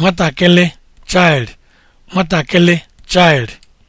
nwatakịrị child nwatakịrị child